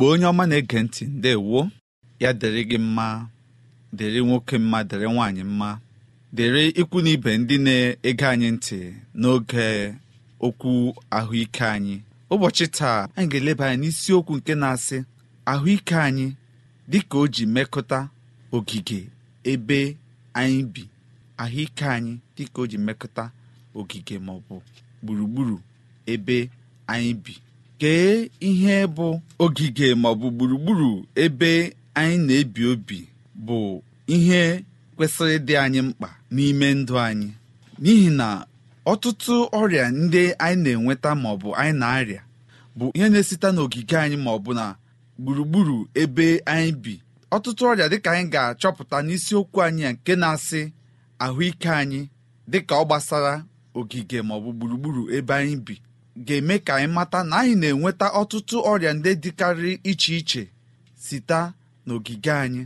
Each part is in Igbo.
igbo onye ọma na-ege ntị ndewo ya dịrị gị mma dịrị nwoke mma dịrị nwaanyị mma dịrị ikwu na ibe ndị na-ege anyị ntị n'oge okwu ahụike anyị ụbọchị taa anyị ga-eleba anya n'isiokwu nke na-asị ahụike anyị dịka o ji mekọta ogige ebe anyị bi ahụike anyị dịka o ji ogige gburugburu ebe anyị bi kee ihe bụ ogige maọbụ gburugburu ebe anyị na-ebi obi bụ ihe kwesịrị ịdị anyị mkpa n'ime ndụ anyị n'ihi na ọtụtụ ọrịa ndị anyị na-enweta maọbụ anyị na-arịa bụ ihe na-esite n'ogige anyị maọbụ na gburugburu ebe anyị bi ọtụtụ ọrịa dịka anyị ga-achọpụta n'isiokwu anyị a nke na-asị ahụike anyị dịka ọ gbasara ogige maọbụ gburugburu ebe anyị bi ga-eme ka anyị mata na anyị na-enweta ọtụtụ ọrịa ndị dịkarị iche iche site n'ogige anyị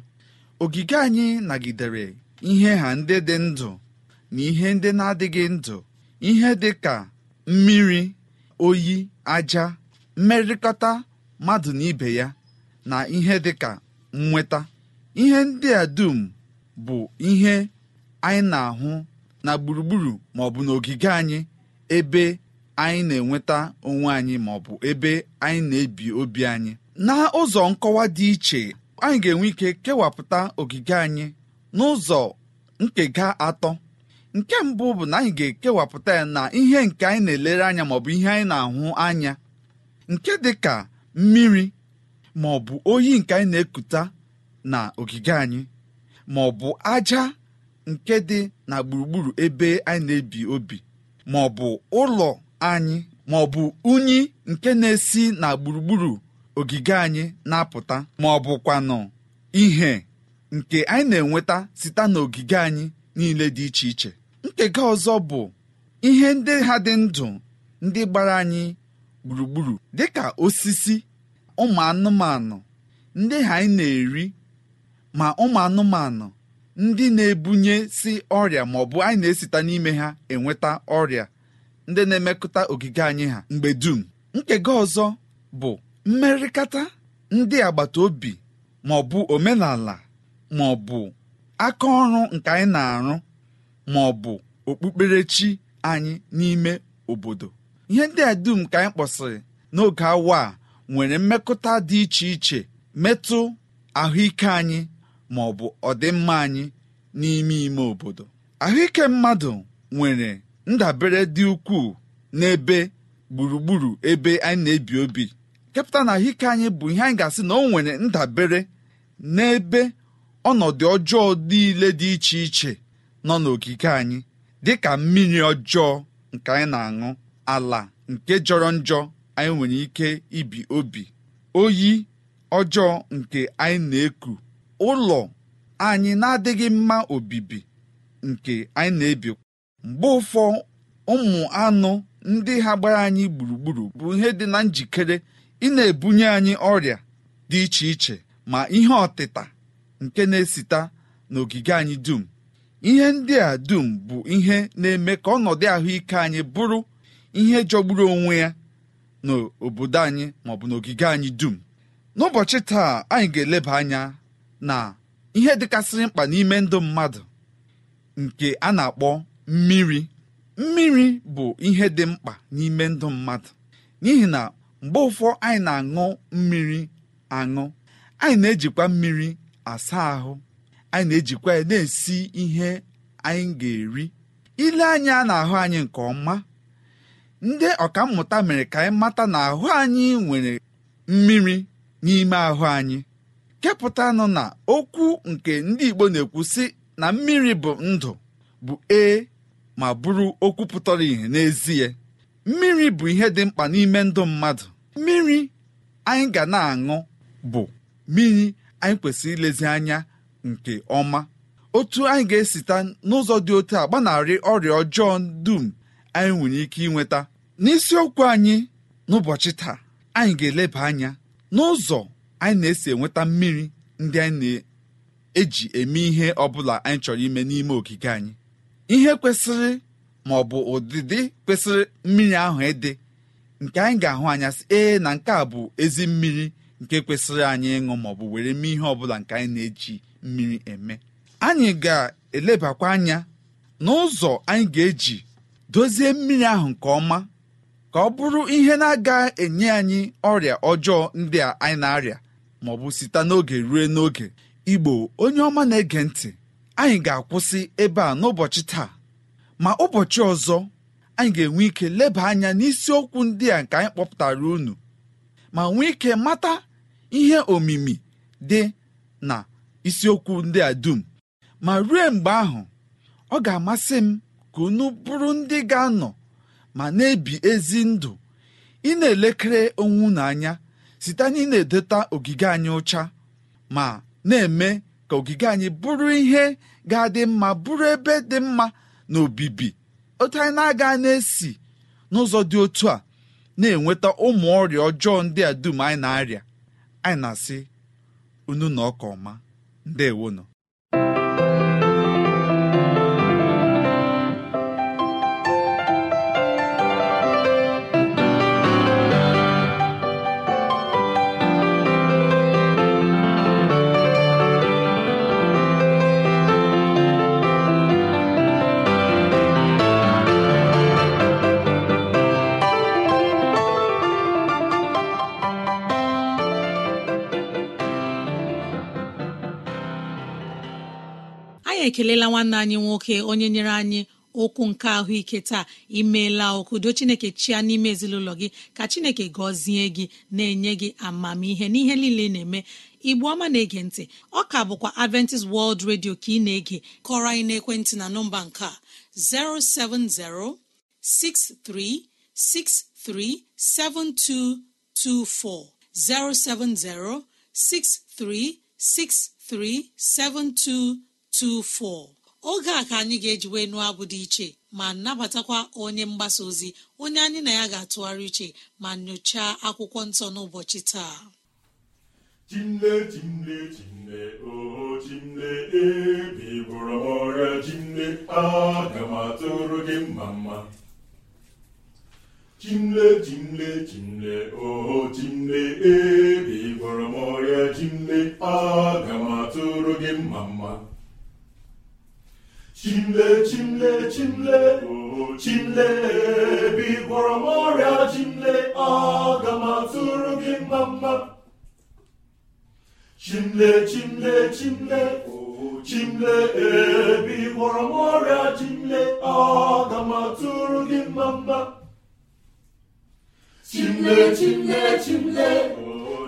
ogige anyị nagidere ihe ha ndị dị ndụ na ihe ndị na-adịghị ndụ ihe dị ka mmiri oyi aja mmerịkọta mmadụ na ibe ya na ihe dị ka nnweta ihe ndị a dum bụ ihe anyị na-ahụ na gburugburu ma n'ogige anyị ebe anyị na-enweta onwe anyị ma ọ bụ ebe anyị na-ebi obi anyị na ụzọ nkọwa dị iche anyị ga-enwe ike kewapụta ogige anyị n'ụzọ nkega atọ nke mbụ bụ na anyị ga-ekewapụta ya na ihe nke anyị na-elere anya maọbụ ihe anyị na-ahụ anya nke dị ka mmiri ma ọ bụ oyi nke anyị na-ekuta na ogige anyị ma ọ bụ aja nke dị na gburugburu ebe anyị na-ebi obi maọbụ ụlọ anyị ma ọ bụ unyi nke na-esi na gburugburu ogige anyị na-apụta ma ọ bụkwanụ ihe nke anyị na-enweta site n'ogige anyị niile dị iche iche nkega ọzọ bụ ihe ndị ha dị ndụ ndị gbara anyị gburugburu dị ka osisi ụmụ anụmanụ ndị ha anyị na-eri ma ụmụ anụmanụ ndị na-ebunye si ọrịa ma bụ anyị na-esita n'ime ha enweta ọrịa ndị na-emekọta ogige anyị ha mgbe dum nkega ọzọ bụ mmerịkata ndị agbata obi ma ọ bụ omenala ma ọ bụ aka ọrụ nke anyị na-arụ ma ọ bụ okpukperechi anyị n'ime obodo ihe ndị a dum ka anyị kpọsịrị n'oge awa a nwere mmekọta dị iche iche metụ ahụike anyị ma ọ bụ ọdịmma anyị n'ime ime obodo ahụike mmadụ nwere ndabere dị ukwuu n'ebe gburugburu ebe anyị na-ebi obi kepụta na ahụike anyị bụ ihe anyị ga-asị na o nwere ndabere n'ebe ọnọdụ ọjọọ niile dị iche iche nọ n'okike anyị dị ka mmiri ọjọọ nke anyị na-aṅụ ala nke jọrọ njọ anyị nwere ike ibi obi oyi ọjọọ nke anyị na-eku ụlọ anyị na-adịghị mma obibi nke anyị na-ebi mgbe ụfọ ụmụ anụ ndị ha gbara anyị gburugburu bụ ihe dị na njikere ị na-ebunye anyị ọrịa dị iche iche ma ihe ọtịta nke na-esita n'ogige anyị dum ihe ndị a dum bụ ihe na-eme ka ọnọdụ ahụike anyị bụrụ ihe jọgburu onwe ya n'obodo anyị maọbụ n'ogige anyị dum n'ụbọchị taa anyị ga-eleba anya na ihe dịkasịrị mkpa n'ime ndụ mmadụ nke a na-akpọ mmiri mmiri bụ ihe dị mkpa n'ime ndụ mmadụ n'ihi na mgbe ụfọ anyị na-aṅụ mmiri aṅụ anyị na-ejikwa mmiri asa ahụ anyị na-ejikwa ya na-esi ihe anyị ga-eri ile anyị a na-ahụ anyị nke ọma ndị mmụta mere ka anyị mata na ahụ anyị nwere mmiri n'ime ahụ anyị kepụtanụ na okwu nke ndị Igbo na-ekwu sị na mmiri bụ ndụ bụ ee ma bụrụ okwu pụtara ìhè n'ezie mmiri bụ ihe dị mkpa n'ime ndụ mmadụ mmiri anyị ga na-aṅụ bụ mmiri anyị kwesịrị ilezi anya nke ọma otu anyị ga-esita n'ụzọ dị otu a gbanarị ọrịa ọjọọ dum anyị nwere ike ịnweta. n'isiokwu anyị n'ụbọchị taa anyị ga-eleba anya n'ụzọ anyị na-esi enweta mmiri ndị anyị na-eji eme ihe ọ bụla anyị chọrọ ime n'ime ogige anyị ihe kwesịrị ma ọ bụ ụdịdị kwesịrị mmiri ahụ ịdị nke anyị ga-ahụ anya sị ee na nke a bụ ezi mmiri nke kwesịrị anyị ịṅụ ma ọ bụ were mee ihe ọbụla nke anyị na-eji mmiri eme anyị ga-elebakwa anya n'ụzọ anyị ga-eji dozie mmiri ahụ nke ọma ka ọ bụrụ ihe na aga enye anyị ọrịa ọjọọ ndị a anyị na-arịa ma ọ bụ site n'oge rue n'oge igbo onye ọma na-ege ntị anyị ga-akwụsị ebe a n'ụbọchị taa ma ụbọchị ọzọ anyị ga-enwe ike leba anya n'isiokwu ndị a nke anyị kpọpụtara unu ma nwee ike mata ihe omimi dị na isiokwu ndị a dum ma ruo mgbe ahụ ọ ga-amasị m ka unu bụrụ ndị ga-anọ ma na-ebi ezi ndụ ị na-elekere onwe unu anya site na ị na-edota ogige anyị ụcha ma na-eme ka ogige anyị bụrụ ihe ga-adị mma bụrụ ebe dị mma na obibi otu anyị na-aga na-esi n'ụzọ dị otu a na-enweta ụmụ ọrịa ọjọọ ndị a dum anyị na-arịa anyị na-asị unu na ọka ọma nọ. na-ekelela nwanne anyị nwoke onye nyere anyị okwu nke ahụike taa imeela do chineke chia n'ime ezinụlọ gị ka chineke gọzie gị na-enye gị amamihe n'ihe niile na-eme igbu ọma na-ege ntị ọ ka bụkwa adventist world radio ka ị na-ege kọrọ anyị n'ekwentị na nọmba nke a 07063637224 7224 24 oge a ka anyị ga-eji wee nụọ abụ dị iche ma nabatakwa onye mgbasa ozi onye anyị na ya ga-atụgharị iche ma nyochaa akwụkwọ nsọ n'ụbọchị taa chimle chimle chimle oho chimle ebe m ọrịa chimle aga m gị mma mma chimle chimle chimle chimle m ọrịa chimle aga m atụrụ gị mma mma chimle chimle chimle chimle ebe ị m ọrịa chimle aga m atụrụ gị mma mma chimle chimle chimle chimle ebe ị m ọrịa chimle aga m atụrụ gị mma mma chimle chimle chimle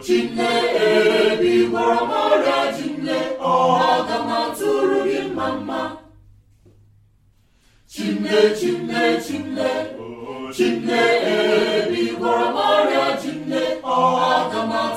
chimle ebe m ọrịa chimle aga m atụrụ gị mma mma Chimne, chimne, chimne, chimne, ebi gwara Maria, chimne, aga m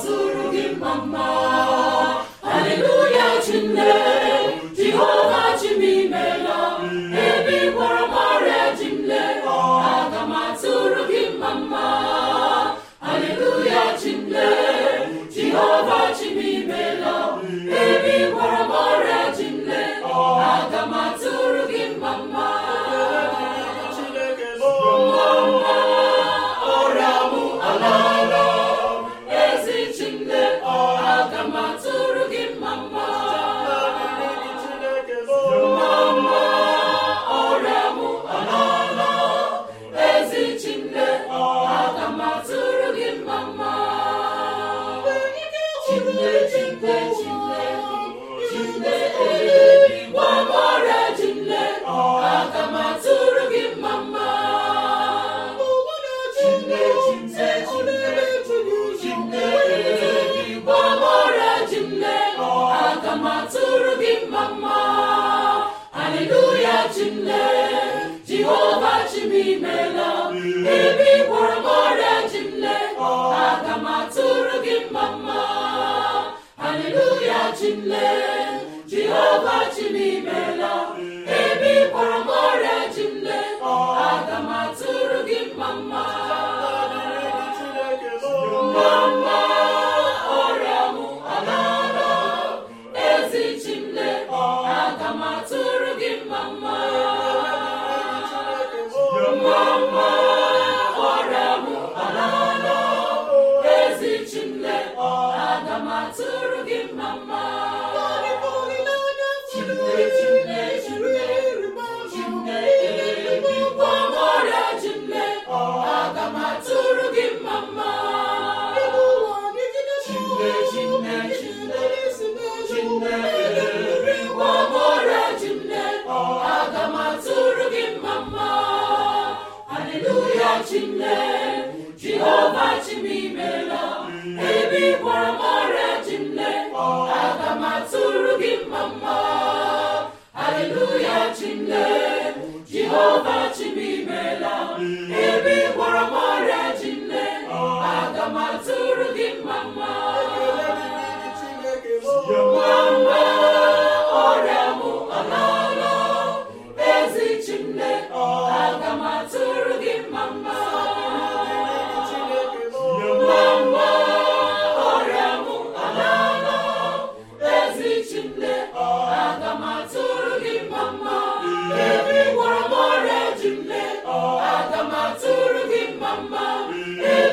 Hallelujah, Chimle, Jehovah Chimimela.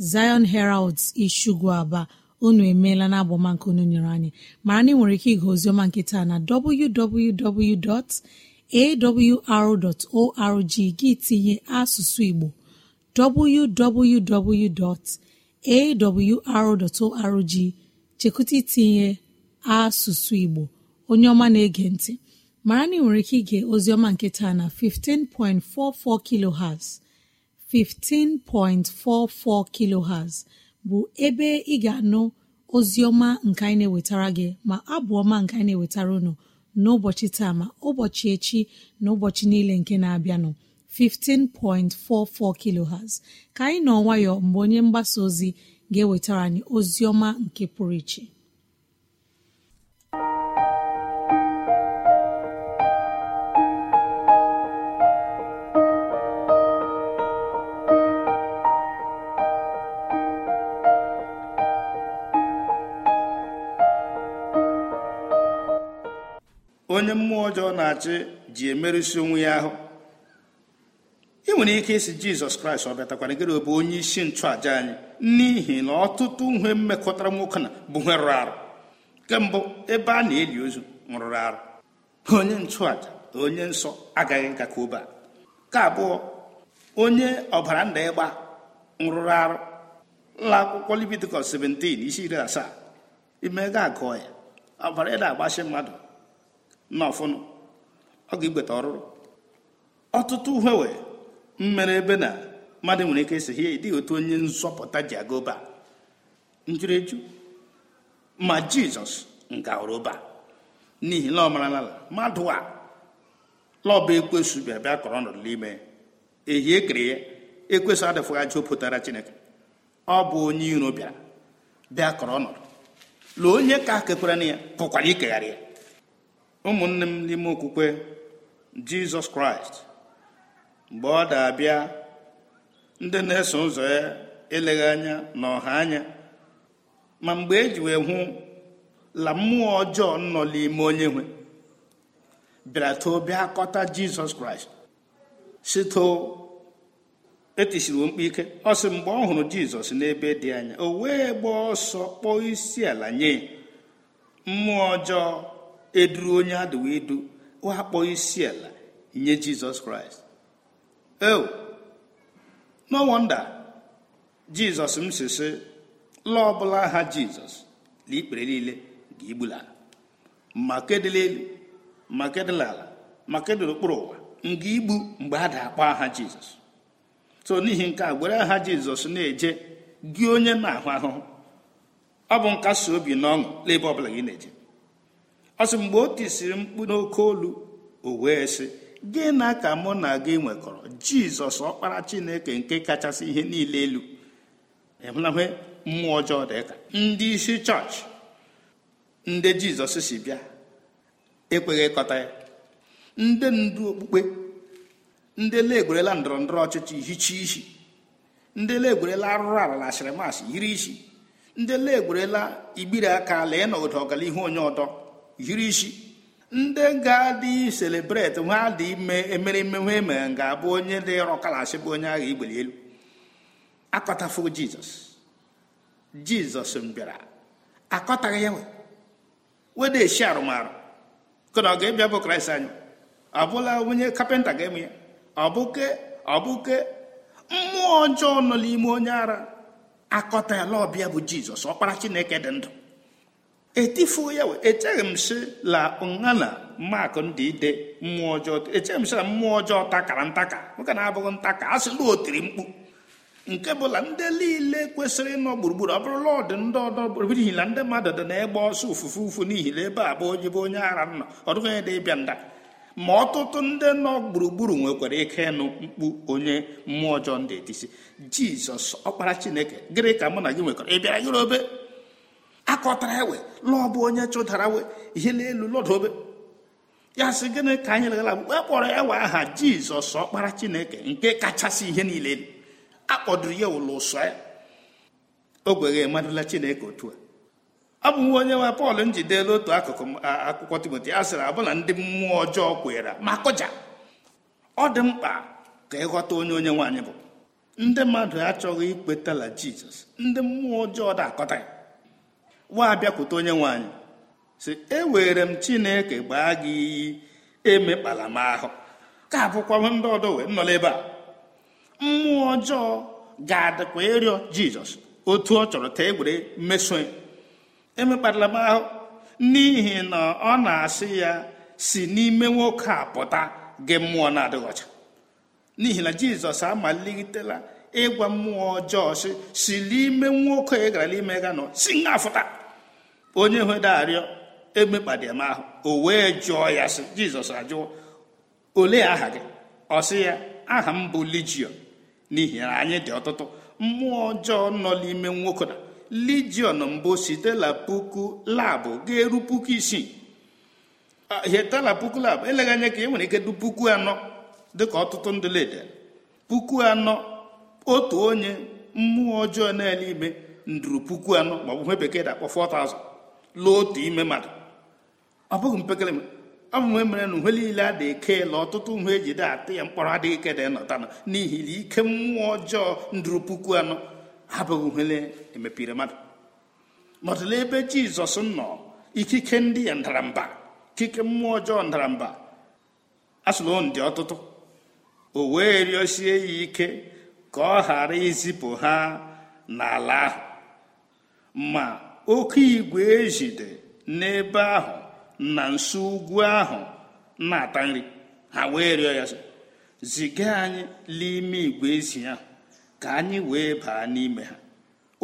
Zion Heralds Ishugwu Aba unu emeela na nke unu nyere anyị mara na nwere ike ịga ozioma nkịta na www.awr.org gị tinye asụsụ Igbo www.awr.org chekwụta itinye asụsụ Igbo onye ọma na-ege ntị mara na nwere ike ige ozioma nkịta na 15.44 kph. 15.44 kilohertz bụ ebe ị ga-anụ ozi nke anyị na-ewetara gị ma abụ ọma nke anyị na-ewetara unu n'ụbọchị taa ma ụbọchị echi na ụbọchị niile nke na-abịanụ 15.44 kilohertz ka anyị nọ nwayọọ mgbe onye mgbasa ozi ga-ewetara anyị ozioma nke pụrụ iche onye mmụọ ọjọọ na-achị ji emerụsi onwe ya ahụ ị nwere ike isi jizọs kraịst ọ bịatakwara gịrị ọ bụ onye isi nchụàja anyị n'ihi na ọtụtụ uhe mmekọtara nwoke na bụ ihe rụrụ arụ kemgbe ebe a na-eli ozu rụrụ arụ onye nchụàja onye nsọ agaghị nka ka obe ka abụọ onye ọbara nda ịgba nrụrụarụ arụ ụlọ akwụkwọ Leviticus 17 isi iri asaa imega agụọ ya ọbara ịda agbachi mmadụ nna ọ ga-igbeta ọrụrụ ọtụtụ uhewe mmere ebe na mmadụ nwere ike esi ihe dịghị otu onye nzọpụta ji aga njụrụ eju ma jizọs nga ọrụba n'ihi na ọ mara n'ala mmadụ a lọba ekwesu bịa bịa kọrọ ọnọdụ n'ime ehi ekere ya ekwesu adịfụghị ajọ pụtara chineke ọ bụ onye iro bịara bịa kọrọ ọnọdụ lee onye ka kekwara na ya pụkwara ikegharị ya ụmụnne m n'ime okwukwe jizọs kraịst mgbe ọ dị abịa ndị na-eso ụzọ ya eleghị anya na ọha anya ma mgbe e ji wee hụ la mmụọ ọjọọ nọ n'ime onye nwe bịara too akọta jizọs kraịst sito etisiri mkpu ike ọ sị mgbe ọ hụrụ jizọs n'ebe dị anya o wee gbaa ọsọ kpọọ isi ala nye mmụọ ọjọọ eduru onye adịwa edu akpọ isi ala nye jizọs kraịst e oh, no wonder jizọs m sisi lọ ọbụla aha jizọs na ikpere niile ga ala ma kedịla elu ma kedịla ala ma kedịla okpuru ụwa nga igbu mgbe a da-akpọ aha jizọs so n'ihi nke a gwere aha jizọs na-eje gị onye na-ahụ ahụhụ ọ bụ nkasi obi na ọṅụ n'ebe ọbụla gị na-eje ọ sị mgbe o tisiri mkpu n'oke olu o wee sị gị na ka mụ na gị nwekọrọ jizọs ọkpara chineke nke kachasị ihe niile elu ịhụlahe mmụọ ọjọọ dịka ndị isi chọọchị ndị jizọs si bịa ekweghị ịkọta ya ndị ndu okpukpe ndị legwerela ndọrọ ndọrọ ọchịchị hicha isi ndị legwerela arụrụ ala na shịrịmasị yiri isi ndị legwerela igbiri aka lee ọgara ọganihu onye ọdọ yiri isi ndị ga-adị selebreti nwa dị ime emereme nwa emere ga-abụ onye dị rọkalashi bụ onye agha igbeli elu akọtafo jizọs jizọs bịara akọtaghị ya wede esi arụmarụ kena ọ ga-ebịa bụ kraịst anyị ọ bụla onye kapịnta ga-eme ya ọbụke ọbụke mmụọ ọjọọ nọ n'ime onye ara akọta ya ọbịa bụ jizọs ọkpara chineke dị ndụ etifuo ya echeghị m si la nhana mmakụ ndị ide mmụọ ọjọọ echeghị m si na mmụọ ọjọọ takara ntaka nwoke na-abụghị ntaka a sịla o mkpu nke bụla ndị niile kwesịrị ịnọ gburugburu ọ bụrụla ọdị ndị ọdọ n'ihi na ndị mmadụ dị na-egba ọsọ ụfụfụ ụfụ n'ihi na ebe a bụ onye bụ onye ara nọ dịghị onye dị ịbịa nda ma ọtụtụ ndị nọ gburugburu nwekwara ike ịnụ mkpu onye mmụọ ọjọọ ndị etisi jizọs ọkpara chineke gịnị ka mụ na gị nwekwara ị bịara gịrobe akọtara ewe lọọ bụ onye chụdara we ihe n'elu lọdobe ya sị gịnị ka anyị legara bụ e kpọrọ ewe aha jizọs ọkpara chineke nke kachasị ihe niile elu akpọdoro ya ụlọ ụsọ ya ogweghe madụla chineke otu a ọ bụ nwa onye nwe pọl njidela otu akụkụ akwụkwọ timoti ya sịrị abụ na ndị mmụọ ọjọọ kwere ma kụja ọ dị mkpa ka ịghọta onye onye nwaanyị bụ ndị mmadụ achọghị ikwetala jizọs ndị mmụọ ọjọọ da akọta ya nwa bịakwute onye nwaanyị si ewere m chineke gbaa gị iyi emekpala m ahụ ka abụkwa ndị ọdọ wee nọla ebe a mmụọ ọjọọ ga-adịkwa ịrịọ jizọs otu ọ chọrọ ta egwere mmeso emekpala m ahụ n'ihi na ọ na-asị ya si n'ime nwoke a pụta gị mmụọ na-adịghị ọcha n'ihi na jizọs amalitela ịgwa mmụọ ọjọọ si si n'ime nwoke ị gara n'ime ga nọ si nga fụta onye hwedo arịọ emekpadem ahụ o wee jụọ ya sị jizọs ajụọ olee aha gị ọ sị ya aha m bụ lijion n'ihi na anyị dị ọtụtụ mmụọ ọjọọ nọ n'ime nwoke na lijion mbụ sitela puku labụ ga-eru puku isii hetala puku labụ eleghị anya ka e nwere ike du puku anọ dịka ọtụtụ ndị lede puku anọ otu onye mmụọ ọjọọ na-ele ime nduru puku anọ maọbụ ihe bekee dakpọ akpọ 4000 lụọ otu ime mmadụ ọ bụghị mpekere amụme mere na uhe niile a na eke la ọtụtụ uhe eji de atụ ya mkpọrọ adịghị ike da nọta n'ihi na ike mmụọ ọjọọ ndụrụ puku anọ abụghị uhele emepere mmadụ nọdụla ebe jizọs nọ ikike ndị ya ndaramba ikike mmụọ ọjọọ ndaramba asụlon dị ọtụtụ o wee rịọsie ya ike ka ọ ghara izipụ ha n'ala ahụ ma oke igwe ejide n'ebe ahụ na nso ugwu ahụ na-ata nri ha wee rịọ ya ziga anyị n'ime igwe ezi ahụ ka anyị wee baa n'ime ha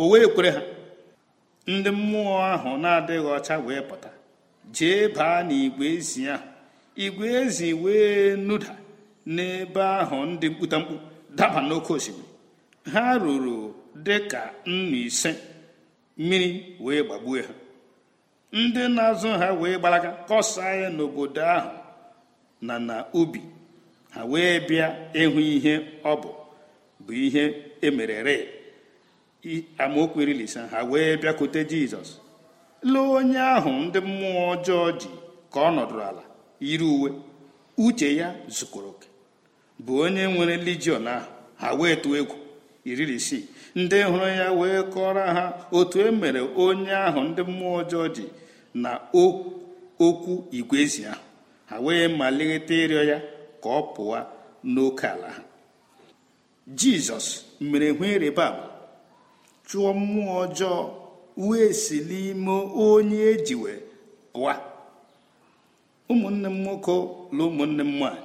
o wee kwere ha ndị mmụọ ahụ na-adịghị ọcha wee pụta jee baa n'igwe ezi ahụ igwe ezi wee nụda n'ebe ahụ ndị mkputamkpu daba n'oke osimiri ha ruru dị ka nnu ise mmiri wee gbagbue ha ndị na-azụ ha wee gbalaga kọsaa ya n'obodo ahụ na na ubi ha wee bịa ịhụ ihe ọ bụ bụ ihe emerere amaokwu iri ha wee bịakute jizọs lee onye ahụ ndị mmụọ ọjọọ ji ka ọ nọdụrụ ala yiri uwe uche ya zukọrọ bụ onye nwere lijion ahụ ha wee tụọ egwu iri isii ndị hụrụ ya wee kọrọ ha otu e mere onye ahụ ndị mmụọ ọjọọ dị na okwu igwezi ahụ ha wee malite ịrịọ ya ka ọ pụwa n'oke ala ha jizọs mere hụ ịrịba ama chụọ mmụọ ọjọọ wee si n'ime onye ejiwe pụa ụmụnne m nwoke na ụmụnne m nwanyị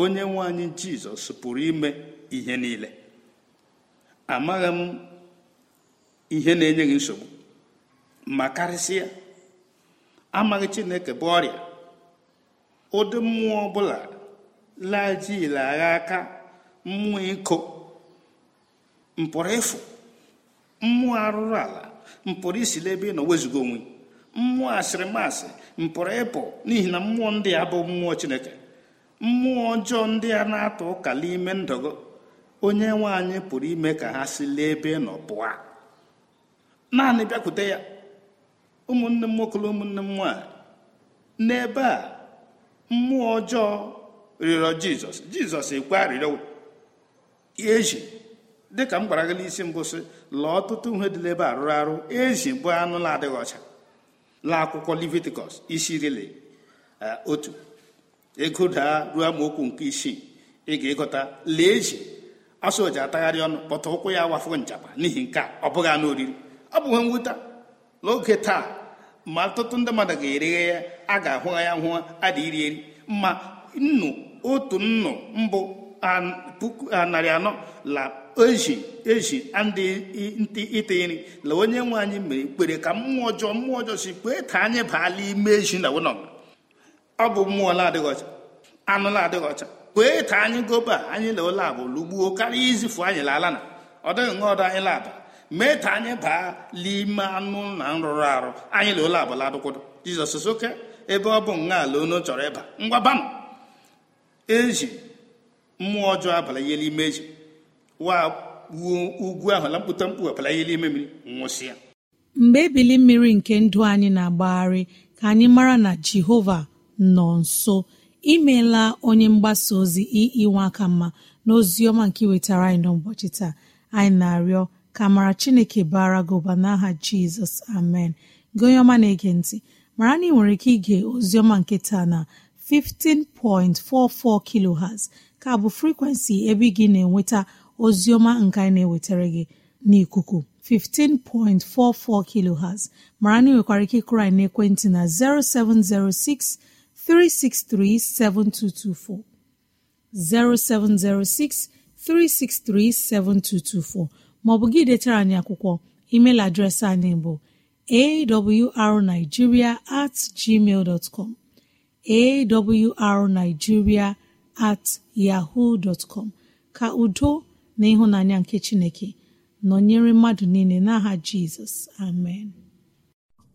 onye nwanyị jizọs pụrụ ime ihe niile amaghị m ihe na-enye gị nsogbu ma karịsịa amaghị chineke bụ ọrịa ụdị mmụọ ọbụla lajile agha aka mmụọ iko mpụrụ ịfụ mmụọ arụrụ ala mpụrụ isi n'ebe ị nọ wezugo onwe mmụọ asịrịmasị mpụrụ ịpụ n'ihi na mmụọ ndị a bụ mmụọ chineke mmụọ ọjọọ ndị a na-atụ ụka n'ime ndọgo onye nwe anyị pụrụ ime ka ha si lee ebe nọ pụọ naanị bịakwute ya ụmụnne m nwoke ụmụnne m nwaanyị n'ebe a mmụọ ọjọọ rịọrọ jizọs jizọs ekwe arịrịọ eji dịka m gwara gị n'isi mbụ sị lọọ ọtụtụ ihe dị n'ebe a rụrụ arụ ezi bụ anụ na-adịghị ọcha la akwụkwọ leviticus isi rile eh, otu ego daa ruo amaokwu nke isii ị ga-egota lee eji ọsọ ji atagharị ọnụ kpọta ụkwụ ya wafụgo nchapa n'ihi nke a ọ bụghị anụ oriri ọ bụghị mwute n'oge taa ma ọtụtụ ndị mmadụ ga-ereghe ya a ga-ahụ ya hụ ada iri eri ma nnu otu nnu mbụ puku narị anọ la ezi ezi ndị ite nri la onye nwe anyị mere kwere ka mmụọ ọjọọ mmụọ ọjọọ si kwee ka anyị baala ime ezi na wụnọ ọ bụ mmụọ na-adịghị ọcha anụ na-adịghị ọcha kwee ka anyị gobe a anyị la ụlọ abụ lụgbuo karịa izifu anyị laala na ọ dịghị ọdụ anyị laba mee ka anyị baa n'ime anụ na nrụrụ arụ anyị la ụlọ abụ ladụkwado jizọs soke ebe ọ bụ nwa ala onu chọrọ ịba ngwabanụ eji mmụọ ọjọọ abalanyela ime eji wa ugwu ahụ na mkpụta mkpu ihe ime mmiri nwụsịa mgbe ebili mmiri nke ndụ anyị na-agbagharị ka anyị mara na jehova nọ nso imeela onye mgbasa ozi iinwe aka mma n'ozi ọma nke wetara anyị n'ụbọchị taa anyị na-arịọ ka mara chineke bara gị n'aha jizọs amen gị onye ọma na-ege ntị mara na ị nwere ike ige oziọma nke taa na 15.44 kilohertz ka bụ frekwensị ebe ị gị na-enweta oziọma nke anyị na-ewetara gị n'ikuku 15.44 kilohertz mara na ị nwekwara ike ịkụrụ anyị n'ekwentị na 0706 363 7224 0706 363 7224 maọbụ gị detara anyị akwụkwọ Ịmail adreesị anyị bụ awrnigeria at gmail dot com awrnigeria at yahoo dot com ka udo na ịhụnanya nke Chineke nọnyere mmadụ niile n'aha Jizọs amen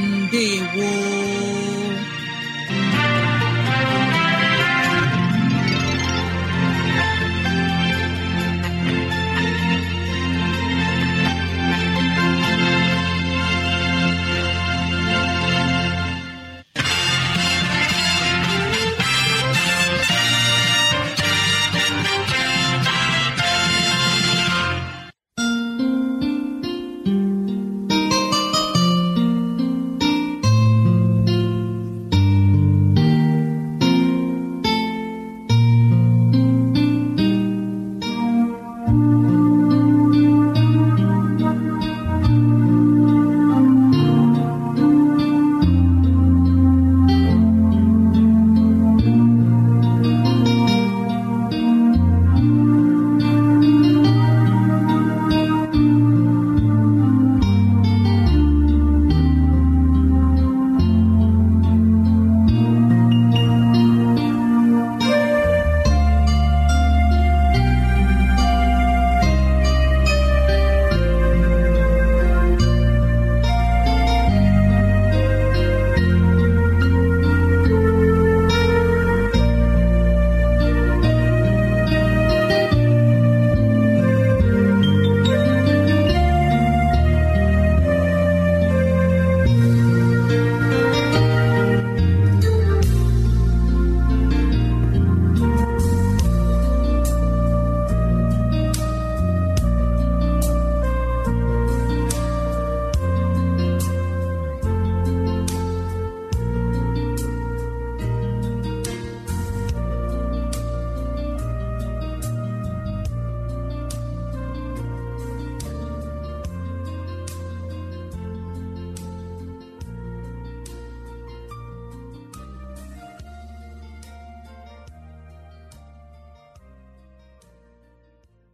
ndewo